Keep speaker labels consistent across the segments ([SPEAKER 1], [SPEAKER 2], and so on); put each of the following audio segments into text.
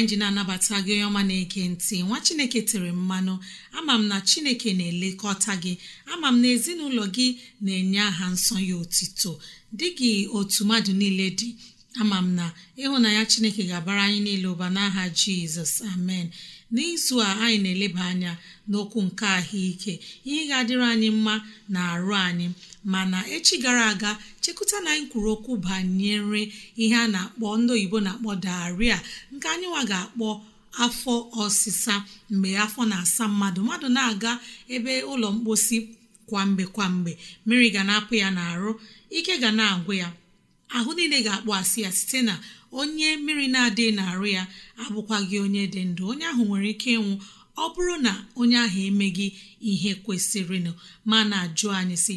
[SPEAKER 1] anyị ji na-anabata gị onye ọma na-eke ntị nwa chineke tere mmanụ ama m na chineke na-elekọta gị ama m na ezinụlọ gị na-enye aha nsọ ya otito dị gị otu mmadụ niile dị ama m na ịhụnanya chineke ga-abara anyị niile ụba n'aha jizọs amen n'izu a anyị na-eleba anya n'okwu nke ahụike ihe ga-adịrị anyị mma na arụ anyị mana echi gara aga chekụta na anyị kwuru okwu banyere ihe a na-akpọ ndị oyibo na-akpọ daria nke anyịnwa ga-akpọ afọ ọsịsa mgbe afọ na-asa mmadụ mmadụ na-aga ebe ụlọ mposi kwamgbe kwamgbe mmiri ga na-apụ ya n'arụ ike ga na-agwụ ya ahụ niile ga-akpọ asị ya site na onye mmiri na-adịghị n'arụ ya abụkwaghị onye dị ndụ onye ahụ nwere ike ịnwụ ọ bụrụ na onye ahụ emeghị ihe kwesịrịnụ ma na-ajụ anyị si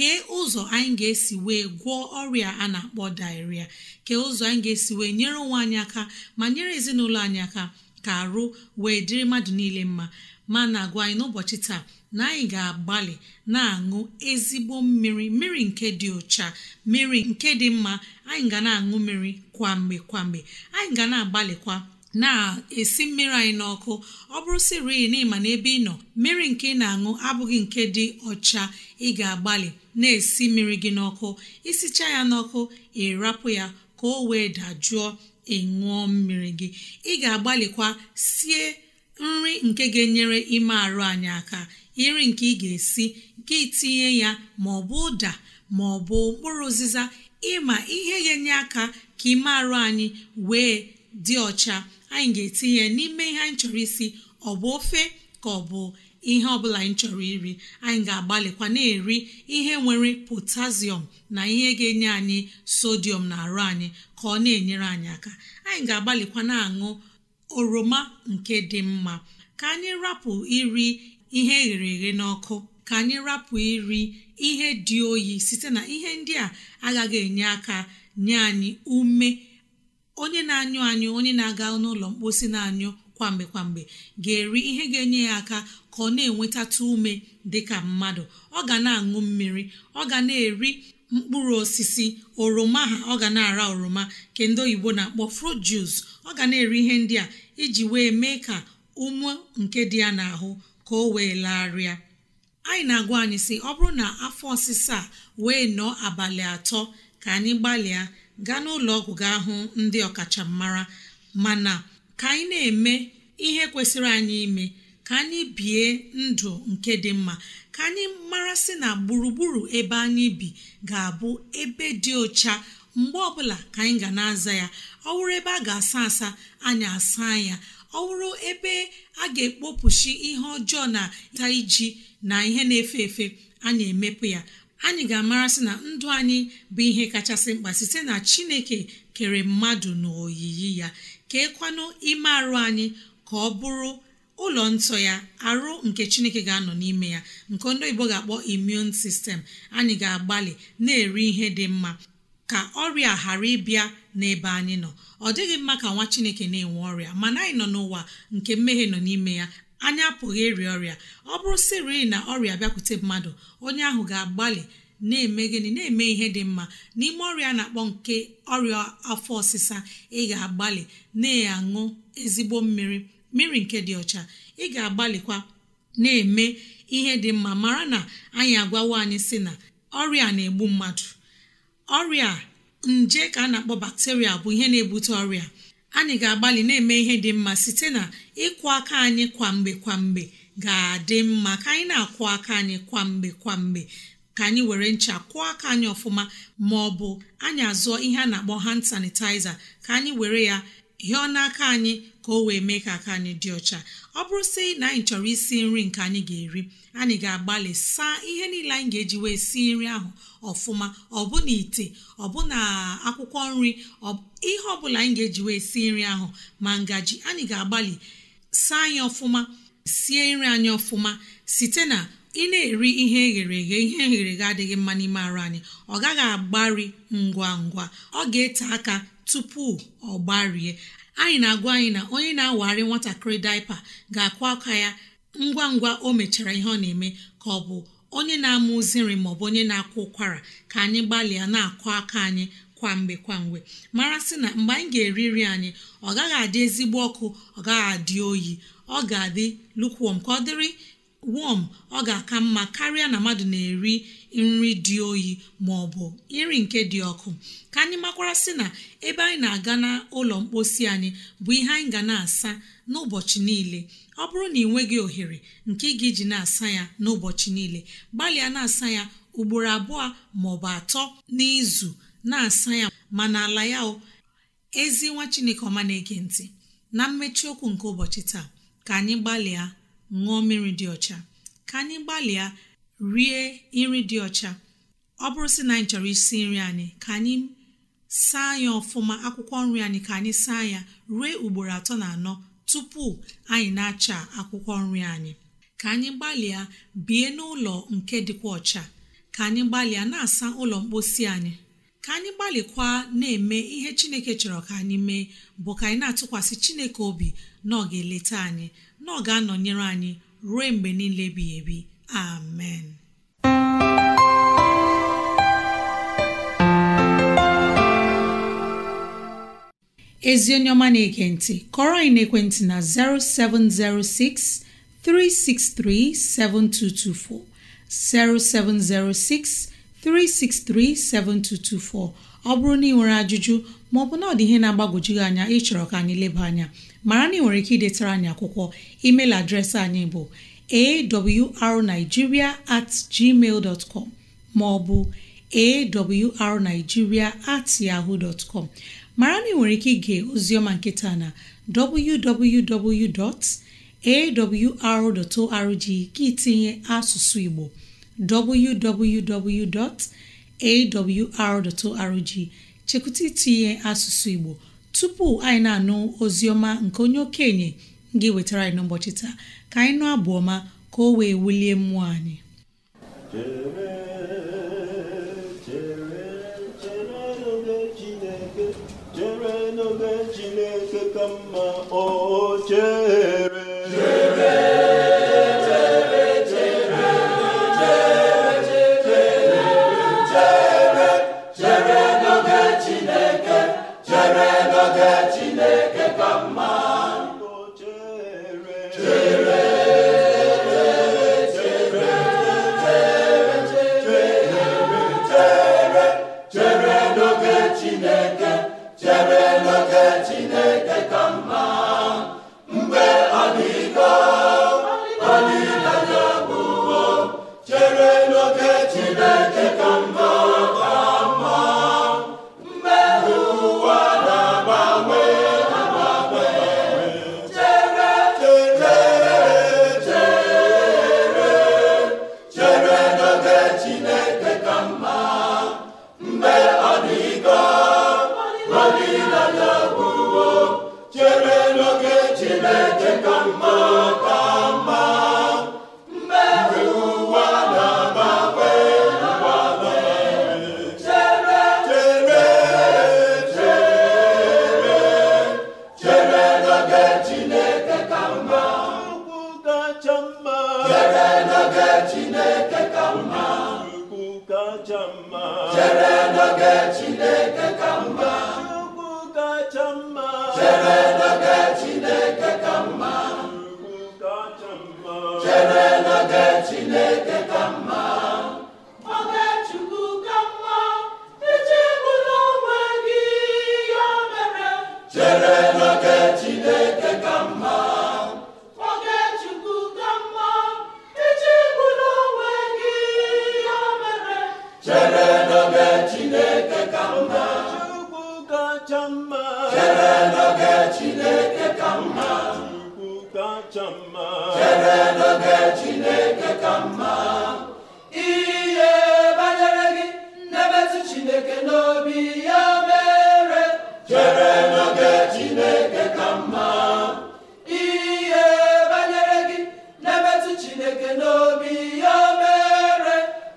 [SPEAKER 1] kee ụzọ anyị ga-esi wee gwọọ ọrịa a na-akpọ dairia kee ụzọ anyị ga-esi wee nyere onwe anyị aka ma nyere ezinụlọ anyị aka ka arụ wee dịrị mmadụ niile mma ma na-agwa anyị n'ụbọchị taa na anyị ga-agbalị na-aṅụ ezigbo mmiri mmiri nke dị ụcha mmiri nke dị mma anyị ga na-aṅụ mmiri kwamgbe kwamgbe anyị ga na-agbalịkwa na-esi mmiri anyị n'ọkụ ọ bụrụ siri na n'ebe ị nọ mmiri nke ị na-aṅụ abụghị nke dị ọcha ị ga-agbalị na-esi mmiri gị n'ọkụ isicha ya n'ọkụ ịrapụ ya ka o wee dajụọ ịṅụọ mmiri gị ị ga-agbalịkwa sie nri nke ga-enyere ime arụ anyị aka iri nke ị ga-esi nke itinye ya ma ọ bụ ụda ma ọ bụ mkpụrụ ụzịza ịma ihe ga-enye aka ka ime arụ anyị wee dị ọcha anyị ga-etinye n'ime ihe anyị chọrọ isi ọ bụ ofe ka ọ bụ ihe ọbụla anyị chọrọ iri anyị ga-agbalịkwa na-eri ihe nwere potassium na ihe ga-enye anyị sodium na arụ anyị ka ọ na-enyere anyị aka anyị ga-agbalịkwa na-aṅụ oroma nke dị mma ka anyị rapụ iri ihe eghere eghe n'ọkụ ka anyị rapụ iri ihe dị oyi site na ihe ndị a agaghị enye aka nye anyị ume onye na-anyụ anyụ onye na-aga n'ụlọ mkposi na-anyụ kwamgbe kwamgbe ga-eri ihe ga-enye ya aka ka ọ na-enwetatụ ume dị ka mmadụ ọ ga na-aṅụ mmiri ọ ga na-eri mkpụrụ osisi oroma ha ọ ga na-ara oroma ka ndị oyibo na-akpọ fruit ọ ga na-eri ihe ndị a iji wee mee ka ume nke dị ya n'ahụ ka o wee larịa anyị na-agwa anyị sị ọ bụrụ na afọ ọsịsa a wee nọọ abalị atọ ka anyị gbalịa gaa n'ụlọ ọgwụ gaa hụ ndị ọkachamara mana ka anyị na-eme ihe kwesịrị anyị ime ka anyị bie ndụ nke dị mma ka anyị marasị na gburugburu ebe anyị bi ga-abụ ebe dị ọcha mgbe ọbụla ka anyị ga na-aza ya ọ wụrụ ebe a ga-asa asa anyị asa ya ọ wụrụ ebe a ga-ekpopụchi ihe ọjọọ na ta iji na ihe na-efe efe anyị emepụ ya anyị ga-amarasị na ndụ anyị bụ ihe kachasị mkpa site na chineke kere mmadụ na oyiyi ya keekwanụ ime arụ anyị ka ọ bụrụ ụlọ nsọ ya arụ nke chineke ga-anọ n'ime ya nke ndị oyibo ga-akpọ immune sistem anyị ga-agbalị na-eri ihe dị mma ka ọrịa ghara ịbịa n'ebe anyị nọ ọ dịghị mma ka nwa chineke na-enwe ọrịa mana anyị nọ n'ụwa nke mmehie nọ n'ime ya anyị apụghị ịrịa ọrịa ọ bụrụ sịrị na ọrịa bịakwute mmadụ onye ahụ ga-agbalị na-eme gịnị na-eme ihe dị mma n'ime ọrịa na-akpọ nke ọrịa afọ ọsịsa ị ga-agbalị na-aṅụ ezigbo mmiri mmiri nke dị ọcha ị ga-agbalịkwa na-eme ihe dị mma mara na anyị agwawo anyị si na ọrịa na-egbu mmadụ ọrịa nje ka a na-akpọ bakteria bụ ihe na-ebute ọrịa anyị ga-agbalị na-eme ihe dị mma site na ịkwụ aka anyị kwamgbe kwamgbe ga-adị mma ka anyị na-akwụ aka anyị kwamgbe kwamgbe ka anyị were ncha kwụọ aka anyị ọfụma ma ọ bụ anyị azụọ ihe a na-akpọ hand sanitizer ka anyị were ya hịọ n'aka anyị ka o wee mee ka aka anyị dị ọcha ọ bụrụ sị na anyị chọrọ isi nri nke anyị ga-eri anyị ga-agbalị saa ihe niile anyị ga-eji wee si nri ahụ ọfụma ọbụna ite ọbụna akwụkwọ nri ihe ọbụla anyị ga-eji wee si nri ahụ ma ngaji anyị ga-agbalị saa anyị ọfụma sie nri anyị ọfụma site na ị na-eri ihe eghere eghe ihe eghere eghe adịghị mma n'ime arụ anyị ọ gaghị agbari ngwa ngwa ọ ga-ete aka tupu ọ gbarie anyị na-agwa anyị na onye na-awagharị nwatakịrị daipa ga-akwa aka ya ngwa ngwa o mechara ihe ọ na-eme ka ọ bụ onye na-amụzi nri maọbụ onye na-akwa ụkwara ka anyị gbalịa na-akụ aka anyị kwamgbe kwamgbe mara sị na mgbe anyị ga-eri nri anyị ọ gaghị adị ezigbo ọkụ ọ gaghị adị oyi ọ ga-adị lukwuom ka ọ dịrị wọm ọ ga-aka mma karịa na mmadụ na-eri nri dị oyi ma ọ bụ nri nke dị ọkụ ka anyị makwara sị na ebe anyị na-aga n'ụlọ mposi anyị bụ ihe anyị ga na-asa n'ụbọchị niile ọ bụrụ na ị nweghị ohere nke ị ga-eji na-asa ya n'ụbọchị niile gbalịa na-asa ya ugboro abụọ ma ọ bụ atọ n'izu na-asa ya ma n'ala ya o ezi nwa chineke ọma na-ege ntị na mmechi okwu nke ụbọchị taa ka anyị gbalịa ṅụọ mmiri dị ọcha ka anyị gbalịa rie nri dị ọcha ọ bụrụ si na anyị chọrọ isi nri anyị ka anyị saa ya ọfụma akwụkwọ nri anyị ka anyị saa ya ruo ugboro atọ na anọ tupu anyị na-acha akwụkwọ nri anyị ka anyị gbalịa bie n'ụlọ nke dịkwa ọcha ka anyị gbalịa na-asa ụlọ mposi anyị ka anyị gbalịkwa na-eme ihe chineke chọrọ ka anyị mee bụ ka anyị na-atụkwasị chineke obi na ọ ga-eleta anyị na ọ ga-anọnyere anyị ruo mgbe niile bi ebi amen ezi onye ọma na-ege ntị kọrọ anyị n'ekwentị na 0706 363 7224 0706 3637224 ọ bụrụ na ị nwere ajụjụ maọbụ na ọ dị ihe na-agbagwoju gị anya ịchọrọ ka anyị leba anya mara na ị nwere ike idetara anyị akwụkwọ email adreesị anyị bụ arigiria at gmail dot com maọbụ arigiria at yahoo dot com mara na ị nwere ike ige ozioma nketa na www.awr.org gị tinye asụsụ Igbo www.awr.org chekwụta itinye asụsụ Igbo tupu anyị na-anụ ozi nke onye okenye ga nwetara anyị n'ụbọchị taa ka anyị nụ abụọma ka o wee wulie mmụọ anyị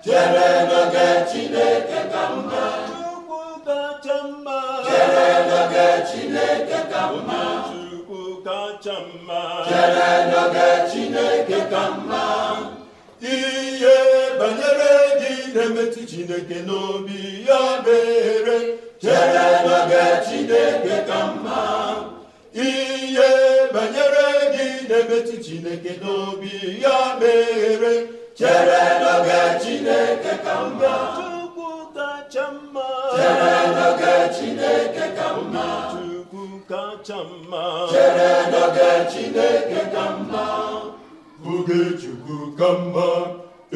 [SPEAKER 2] chere n'oge Chineke ka mma Chukwu kacha mma chere n'oge Chineke ka mma Chukwu kacha mma chere Chineke ka mma ihe banyere gị na-emetụ Chineke n'obi ya mere chere n'oge Chineke ka mma ihe banyere gị na-emetụ Chineke n'obi ya mere chere n'oge Chineke ka mma Chukwu kacha mma chere n'oge Chineke ka mma Chukwu
[SPEAKER 1] kacha mma chere n'oge Chineke ka mma oge
[SPEAKER 2] Chukwu ka mma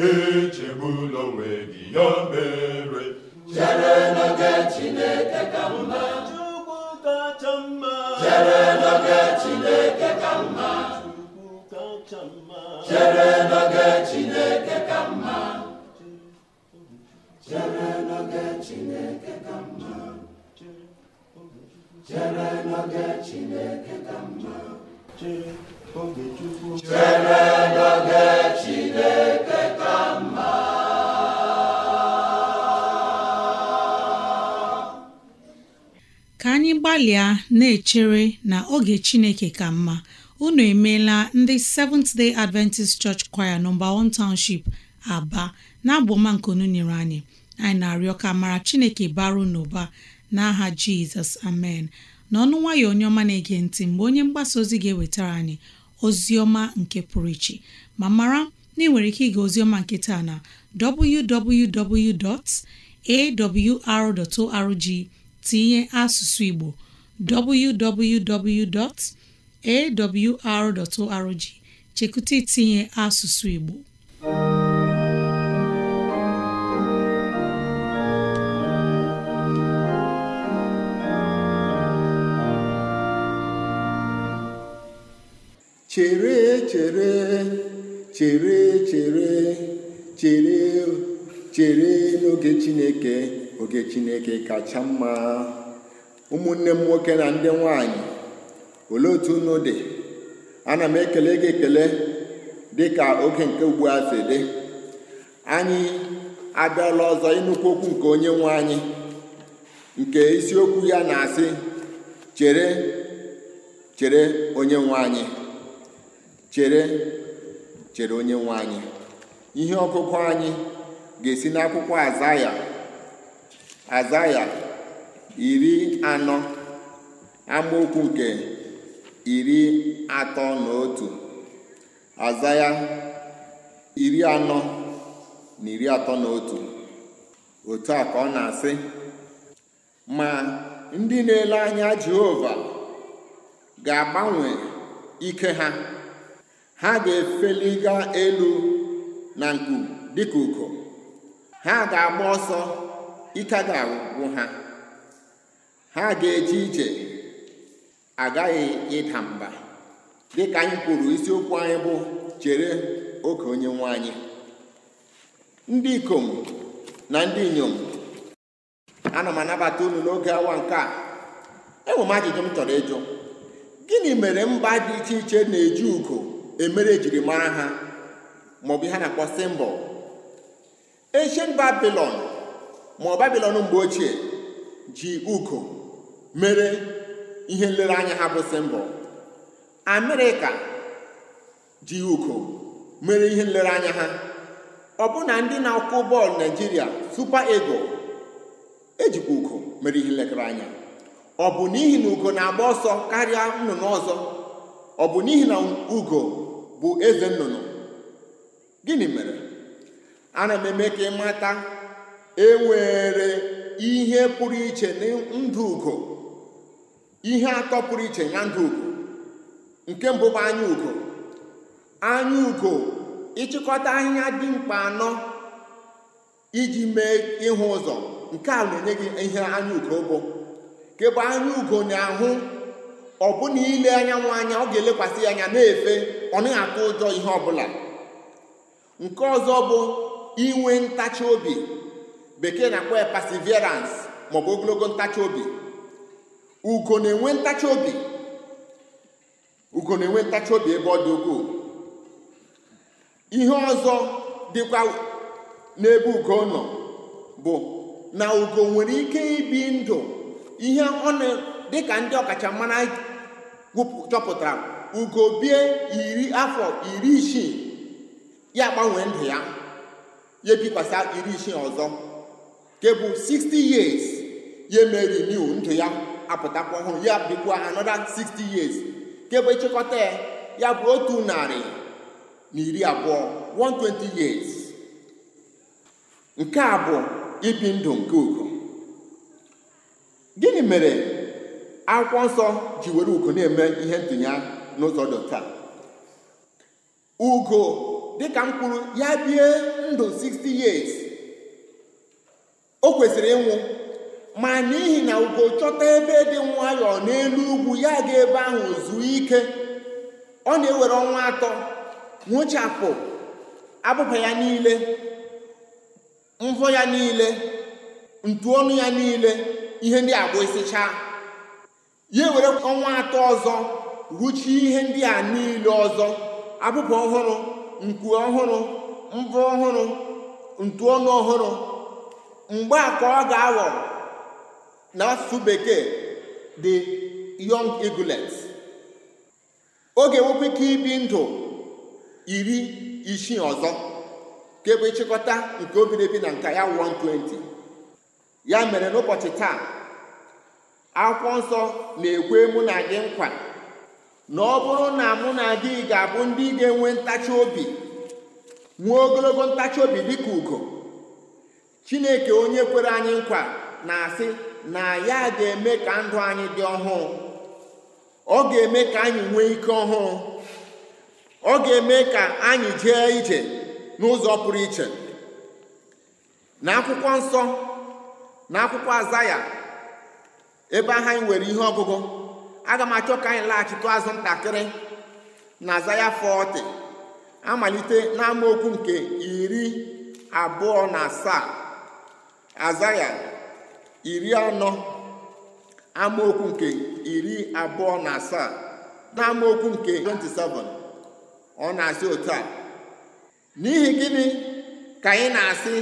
[SPEAKER 2] echegbula onwe gị ya mere chere n'oge Chineke ka mma
[SPEAKER 1] Chukwu kacha mma chere n'oge Chineke ka mma Chukwu kacha mma chere Chineke ka mma chere n'oge Chineke
[SPEAKER 2] ka mma chere n'oge Chineke ka mma
[SPEAKER 1] ka anyị gbalịa na-echere na oge Chineke ka mma unu emeela ndị Seventh Day Adventist Church Choir nọmba 1 Township Aba na abụ ọma nke nyere anyị anyị na-arịọ ka mara Chineke baru n'ụba n'aha Jizọs amen n'ọnụ nwayọ onye ọma na-ege ntị mgbe onye mgbasa ozi ga-ewetara anyị ozi ọma nke pụrụ iche ma mara na ị nwere ike ịga ozi ọma nke taa na www.awr.org tinye asụsụ Igbo www.awr.org chekụta itinye asụsụ Igbo
[SPEAKER 2] chere chere chere chere chere chere n'oge chineke oge chineke kacha mma ụmụnne m nwoke na ndị nwanyị olee otu unu dị ana m ekele gị ekele dị ka oge nke ugbu a si dị anyị abịala ọzọ ịnụkwu okwu nke onye nwe anyị nke isiokwu ya na-asị chere chere onye nwe anyị chere onye nwe anyị ihe ọkụkọ anyị ga-esi n'akwụkwọ azaya azaya iri anọ amaokwu nke iri atọ na otu azaya iri anọ na iri atọ na otu otu a ka ọ na-asị ma ndị na-ele anya Jehova ga-agbanwe ike ha ha ga efeli gaa elu na nku dịka ugo ha ga-agba ọsọ ike ga ha ha ga-eje ije agaghị ịda mba dịka anyị kwuru isiokwu anyị bụ chere oke onye nwe anyị ndị ikom na ndị inyom ana m anabata unu n'oge awa nke a enwere m ajụjụ m chọrọ ịjụ gịnị mere mba dị iche iche na-eji ugo emere ejiri mara ha maọbụ ihe a na-akpọ simbọl ancient babilon ma babilon mgbe ochie ji ugo mere ihe nlereanya ha bụ simbol amerịka ji ugo mere ihe nlereanya ha ọ na ndị na akwụ bọọlụ naijiria super ego ejikwa ugo mere ihe nlekere anya ọ bụ n'ihi na ugo na-agba ọsọ karịa nnụnụ ọzọ ọ bụ n'ihi na ugo bụ eze nnụnụ gịnị mere ana m eme ka ị ịmata enwere ihe pụrụ iche na ndụ ugo ihe atọ pụrụ iche na ndụ ugo nke mbụ bụ anya ugo anya ugo ịchịkọta ahịhịa dị mkpa anọ iji mee ịhụ ụzọ nke a na-enye gị ihe anya ugo bụ nke bụ anya ugo na-ahụ ọ bụ na ile anyanwụ anya ọ ga-elekwasị ya anya na-efe ọ naghị atụ ụjọ ihe ọbụla nke ọzọ bụ inwe ntachi obi bekee na-akpọ ya perseverance maọbụ ogologo ntachi obi ugo na-enwe ntachi obi ugo na-enwe ntachi obi ebe ọ dị ukwuu ihe ọzọ dịkwa n'ebe ugo nọ bụ na ugo nwere ike ibi ndụ ihe ọ dịka ndị ọkachamara chọpụtara bie iri afọ iri isii ya gbanwee ndụ ya ya ebikwasa iri isii ọzọ nke bụ 60 years ya emeri new ndụ ya apụtakwa ọhụrụ ya bikwa anoda 60 years nke bụ ịchịkọta ya bụ otu narị na iri abụọ 120 years nke a bụ ibi ndụ nke ugo gịnị mere akwụkwọ nsọ ji were ugo na-eme ihe ntụnya n'ụzọ dị taa ugo dịka m kwuru ya bie ndụ 60 years o kwesịrị ịnwụ ma n'ihi na ugo chọta ebe dị nwayọọ n'elu ugwu ya ga ebe ahụ zuo ike ọ na-ewere ọnwa atọ nwụchapụ abụba ya niile mvọ ya niile ọnụ ya niile ihe ndị agwa isichaa ya were ọnwa atọ ọzọ rụchie ihe ndị a niile ọzọ abụba ọhụrụ nku ọhụrụ mbụ ọhụrụ ntu ọnụ ọhụrụ mgbe a ka ọ ga-aghọ na n'asụsụ bekee dị young eaglet oge nwekwa ike ibi ndụ iri isii ọzọ e nke bụ ịchịkọta nke obiri na nka ya 120 ya mere n'ụbọchị taa akwụkwọ nsọ na-ekwe mụ na gị nkwa na ọ bụrụ na mụ na gị ga-abụ ndị ga-enwe ntachi obi nwee ogologo ntachi obi dị ka ugo chineke onye kwere anyị nkwa na-asị na ya ga-eme ka ndụ anyị dị ọhụụ ọ ga-eme ka anyị nwee ike ọhụụ ọ ga-eme ka anyị jee ije n'ụzọ pụrụ iche na akwụkwọ nsọ na ebe ahụ anyị nwere ihe ọgụgụ aga m achọ ka anyị laghachitụ azụ ntakịrị na zaya 40 amalite n'amaokwu nke iri abụọ na asaa zaya iri anọ amaokwu nke iri abụọ na asaa na amaokwu nke 27 ọ na-asị otu a n'ihi gịnị ka anyị na-asị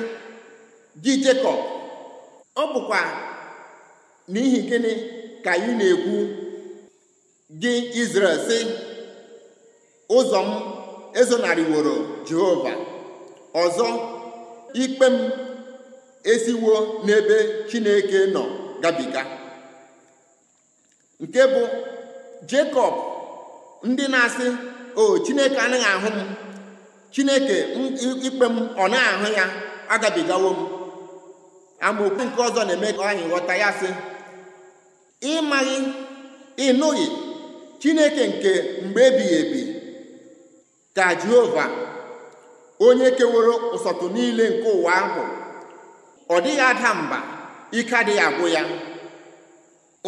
[SPEAKER 2] gị Jekọb ọ bụkwa n'ihi gịnị ka anyị na-ekwu gị Izrel sị ụzọ m ezonariworo Jehova ọzọ ikpe m esiwo n'ebe Chineke nọ gabiga nke bụ Jekọb ndị na-asị o Chineke anaghị ahụ m Chineke ikpe m ọ naghị ahụ ya agabigawo m amaokwu nke ọzọ na-eme ka anyị ghọta ya sị ịmaghị ịnụghị chineke nke mgbe ebighị ebi ka jehova onye keworo ụsọtụ niile nke ụwa ahụ ọ dịghị ada mba ike adịghị agwụ ya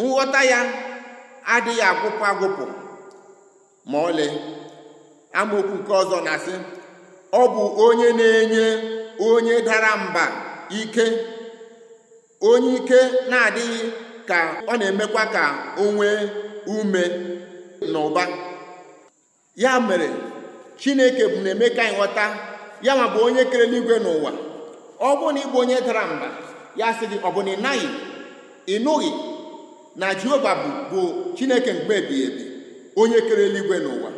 [SPEAKER 2] nghọta ya adịghị agwụpụ agwụpụ ma ọlị amaokwu nke ọzọ na-asị ọ bụ onye na-enye onye dara mba ike onye ike na-adịghị ka ọ na-emekwa ka o nwee ume na ụba ya mere chineke bụ na-eme ka anyị ghọta ya ma bụ onye kere eluigwe n'ụwa ọ bụrụ na ịbụ onye dara mba ya sị gị ọ bụ na ị naghị ịnụghị na jehova bụ bụ chineke mgbe ebighị ebi onye kere eluigwe n'ụwa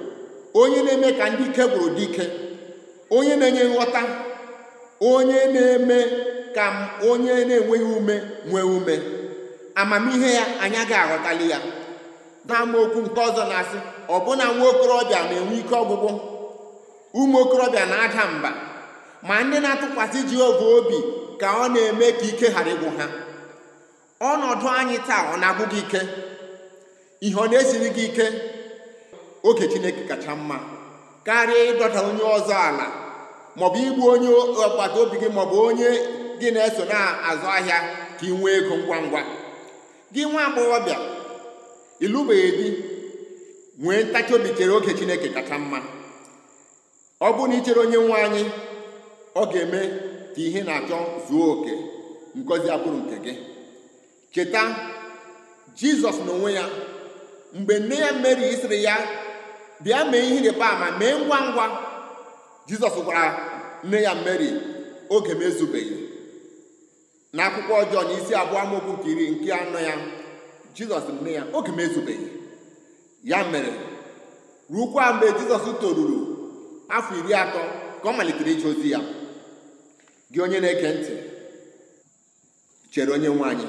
[SPEAKER 2] onye na-eme ka ndị ike gwụrụ dị ike onye na-enye nghọta onye na-eme ka onye na-enweghị ume nwee ume amamihe ya anya ga aghọtali ya n'amaokwu nke ọzọ na-asị ọbụna nwa okorobịa na-enwe ike ọgwụgwụ ụmụ okorobịa na-ada mba ma ndị na-atụkwasị Jehova obi ka ọ na-eme ka ike ghara ịgwụ ha ọnọdụ anyị taa ọ na-agwụ gị ike ihe ọ na-esiri gị ike oge Chineke kacha mma karịa ịdọta onye ọzọ ala maọbụ igbu onye agbata obi gị maọbụ onye gị na-eso na-azụ ahịa ka ị nwee ego ngwa ngwa gị nwa agbọghọbịa ịlụbeghị di nwee ntachi obi chere oge chineke kacha mma ọ bụrụ na ichere onye nwe anyị ọ ga-eme ka ihe na-achọ zuo oke ngozi abụrụ nke gị cheta jizọs n'onwe ya mgbe nne ya meri sịrị ya bịa mee ihe ịrịba ama mee ngwa ngwa jizọs gwara nne ya meri oge m ezubeghị na akwụkwọ ọjọọ na isi abụọ amaokwu nke iri nke anọ ya jizọs nne ya oge m ezubeghị ya mere rukwa mgbe jizọs toruru afọ iri atọ ka ọ malitere ije ozi ya gị onye na-ege ntị chere onye nwaanyị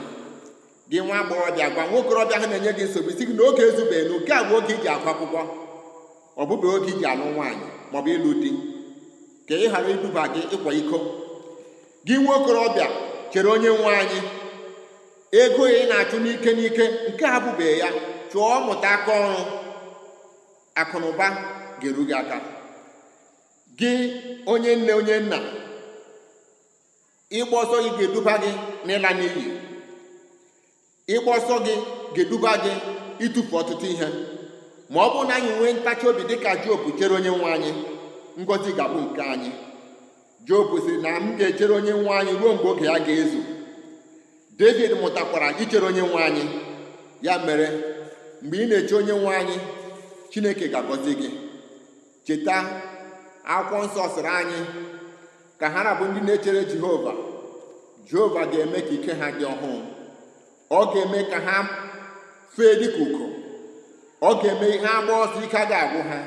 [SPEAKER 2] gị nwa agbọghọbịa gwa nwa okorobịa ha na-enye gị nsogbu isi gị na oge ezubeghị na oke abụ oge ji agụ akwụkwọ ọbụba oge ji alụ nwaanyị maọbụ ịlụ di ka ị ghara iduba gị ịkwa iko gị nwa okorobịa chere onye nwe anyị ego ị na-achụ n'ike n'ike nke a bụbeghị ya chụọ mụta aka ọrụ akụnaụba ga-eru gị aka gị onye nne onye nna ịgba ọsọ gị ga-eduba gị n'ịla n'iyi ịgba ọsọ gị ga-eduba gị ịtụfu ọtụtụ ihe ma ọ bụrụ na anyị nwee ntachi obi dịka Job chere onye nwe anyị ngọzi ga-abụ nke anyị Job sị na m ga-echere onye nwa anyị ruo mgbe oge ya ga-ezu David mụtakwara ichere onye nwe anyị ya mere mgbe ị na-eche onye nwe anyị Chineke ga-agọzi gị cheta akwụkwọ nsọ sịrị anyị ka ha na ndị na-echere Jehova Jehova ga-eme ka ike ha dị ọhụụ ọ ga-eme ka ha fee dịka ugo ọ ga-eme ihe agba ọsọ ike agaghị agwụ ha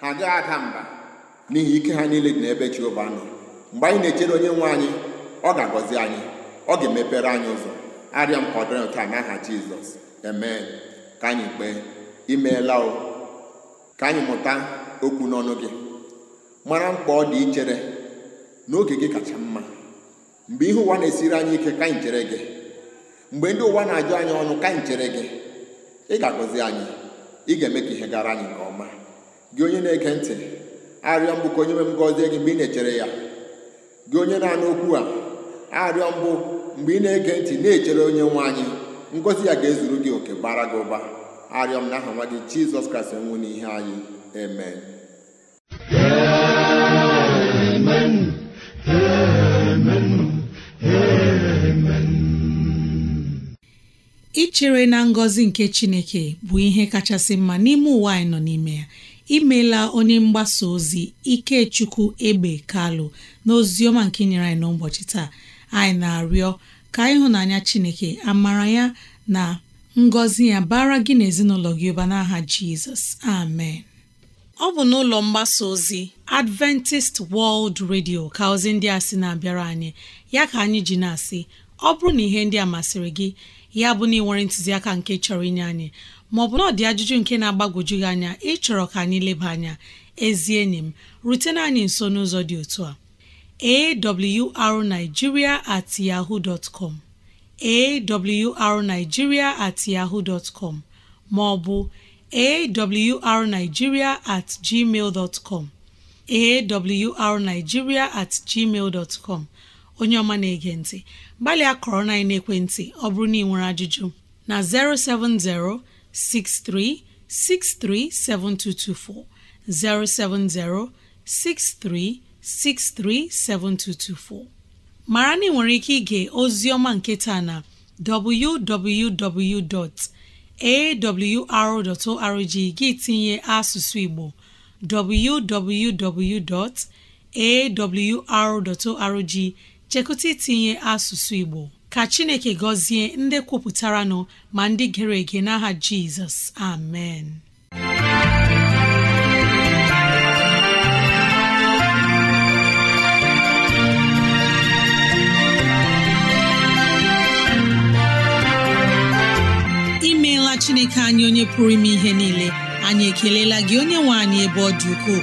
[SPEAKER 2] ha gaghị ada mba n'ihi ike ha niile dị n'ebe Jehova nọ mgbe anyị na-echere onye nwe anyị ọ ga-agọzi anyị ọ ga-emepere anyị ụzọ arịa mkpọdụrụ nke a n'aha jizọs eme ka anyị kpee imeela o ka anyị mụta okwu n'ọnụ gị mara mkpa ọ dị ichere n'oge gị kacha mma mgbe ihe ụwa na-esiri anyị ike ka anyị chere gị mgbe ndị ụwa na-ajụ anyị ọnụ ka anyị chere gị ị ga-agọzi anyị ị ga-eme ka ihe gara anyị nke ọma gị onye na-ege ntị arịọ mbụ ka onye nwe m gọzie gị mgbe ị na-echere ya gị onye na-anụ okwu a arịọ mbụ mgbe ị na-ege ntị na-echere onye nwe anyị ngozi ya ga-ezuru gị oke bara gị ụba arịọ m aha nwa gị jizọs kraịst nwụ n'ihe anyị eme
[SPEAKER 1] ichere na ngọzi nke chineke bụ ihe kachasị mma n'ime ụwa anyị nọ n'ime ya imeela onye mgbasa ozi Ikechukwu Egbe Kalụ na ọma nke nyere anyị n'ụbọchị taa anyị na-arịọ ka ịhụnanya Chineke amara ya na ngọzi ya bara gị na ezinụlọ gị ụba n'aha Jizọs amen ọ bụ n'ụlọ mgbasa ozi Adventist World Radio ka ozi ndị a sị na-abịara anyị ya ka anyị ji na-asị ọ bụrụ na ihe ndị a masịrị gị ya bụ na ị nwere ntụziaka nke chọrọ inye anyị Ma maọbụ na ọ dị ajụjụ nke na-agbagwoju gị anya ịchọrọ ka anyị leba anya ezi enyi m rutena anyị nso n'ụzọ dị otu a awrnigeria at yahoo dot com awrnigeria at yahoo com maọbụ awrnigeria at gmail com awrnigeria at gmail com onye ọma na-ege ntị gbalịa kọrọ na ekwentị ọ bụrụ na ị nwere ajụjụ na 070 63637224 mara na ị nwere ike ige Ozioma nketa nke taa na www.awr.org gị tinye asụsụ Igbo www.awr.org chekụta itinye asụsụ Igbo ka chineke gọzie ndị kwupụtara nọ ma ndị gere ege n'aha jizọs amen imeela chineke anyị onye pụrụ ime ihe niile anyị ekelela gị onye nwe anyị ebe ọ dị ukwuu.